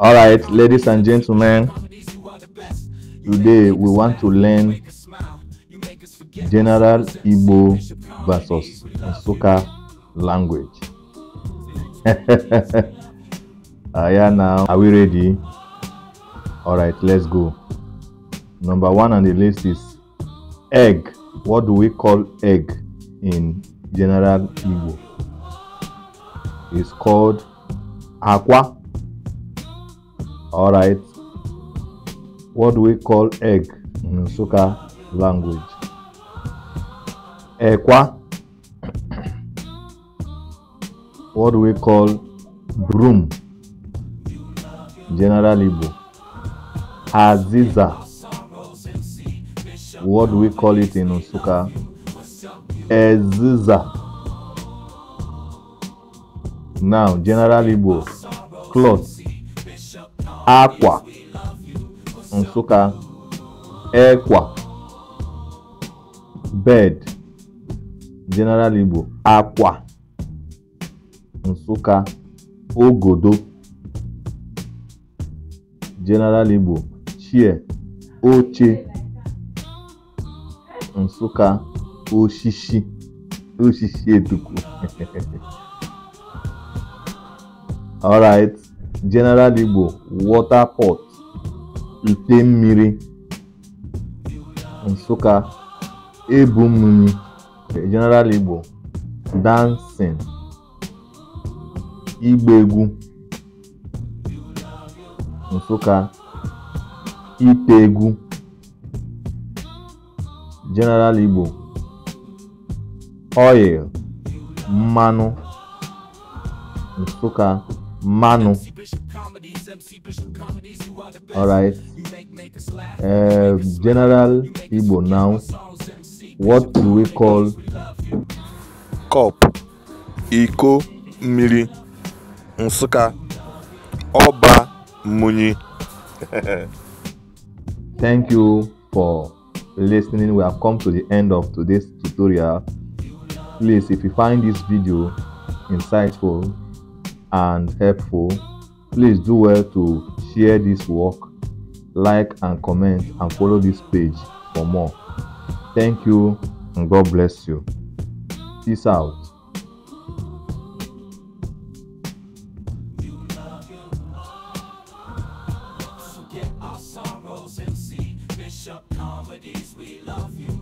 All right, ladies and gentlemen, today we want to learn General Igbo versus Nsukka language. uh, yeah, now are we ready? All right, let's go. Number one on the list is egg. What do we call egg in General Igbo? It's called akwa all right what do we call egg in Nsukka language ẹ̀kwá what do we call broom general Igbo aziza what do we call it in Nsukka eziza now general Igbo cloth Akwa Nsukka Ekwa Bed General Igbo Akwa Nsukka Ogodo General Igbo Chie Oche Nsukka Oshishi Oshishi eduku. All right. General Igbo water port ite mmiri Nsukka ebu mmiri e, General Igbo dancing ịgba egwu Nsukka ite egwu General Igbo oil mmanụ Nsukka Manu. Alright. Uh, um, General Ibo. now. What do we call cup? Iko Miri Nsụka Ọba Muni. Thank you for listening. We have come to the end of today's tutorial. Please, if you find this video insightful, and helpful, please do well to share this work, like and comment, and follow this page for more. Thank you and God bless you. Peace out. Comedies, we love you.